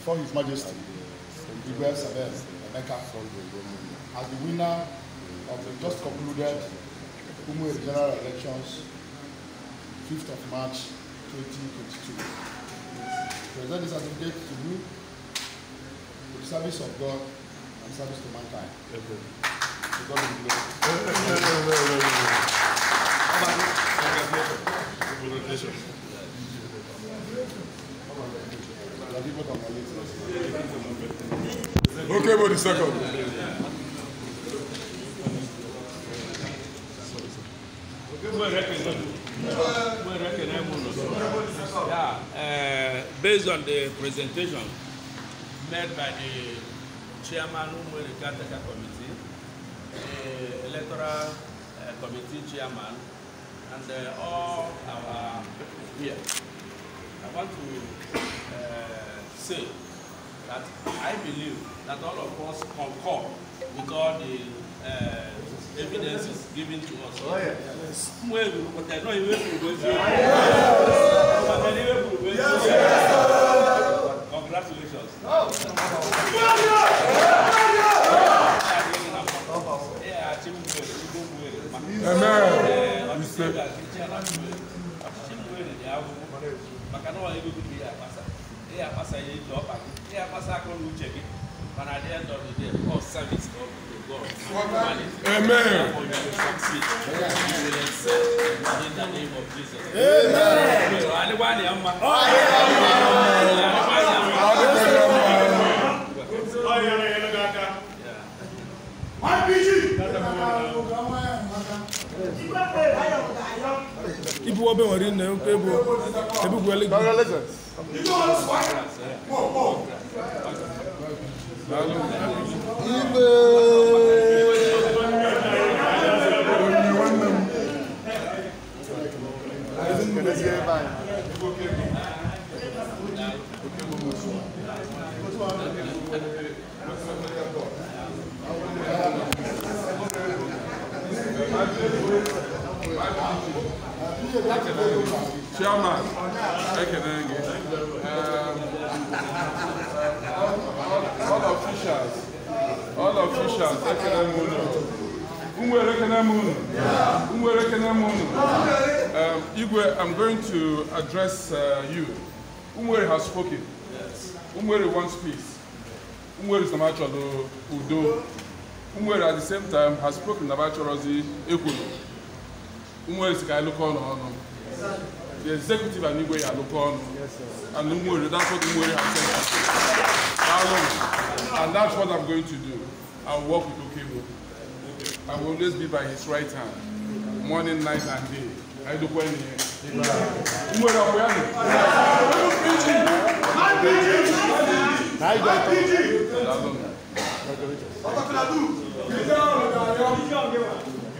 before His Majesty, Igwe Sabel Emeka, as the winner of the just concluded Umwe general elections, 5th of March 2022. Present this certificate to you for the service of God and service to mankind. To God be glory. Congratulations. Okay, but the second. Yeah, uh, based on the presentation made by the chairman of the the committee, the uh, electoral uh, committee chairman, and uh, all our here, I want to uh, say that I believe that all of us concur with all the uh, evidences given to us. Oh, yeah. yes. Congratulations. Amen. Amen they are passing a job, they are passing a call check it. And at the end of the day, all service of God. Amen. You will succeed. You will excel in the name of Jesus. Amen. Amen. Amen ibi wọ́n bẹ̀ wọ́n rí nà ẹ̀ pé bo ebi gbọ́ lé gbọ́. Ibe. Chairman, ekele um, uh, gị. All officials, all officials, ekele m unu. Nwere ekele m Igwe, I'm going to address uh, you. Umwere has spoken. Umwere wants peace. Umwere is the Namacholo Udo. Umwere at the same time has spoken about Namacholozi Ekwulu. Umueri ga-alụkọ ọnụ ọnụ the executive and Igwe alụkọ ọnụ and Umueri that's what Umueri has said and that's what I'm going to do I'll work with Okebo I will always be by his right hand morning night and day ayidokwa ẹni yẹn Umueri ọkọ ya nù. Ọkọ̀ fìlà dùn, ìdílé ọ̀rọ̀ ìdàrẹ́ ọ̀hún.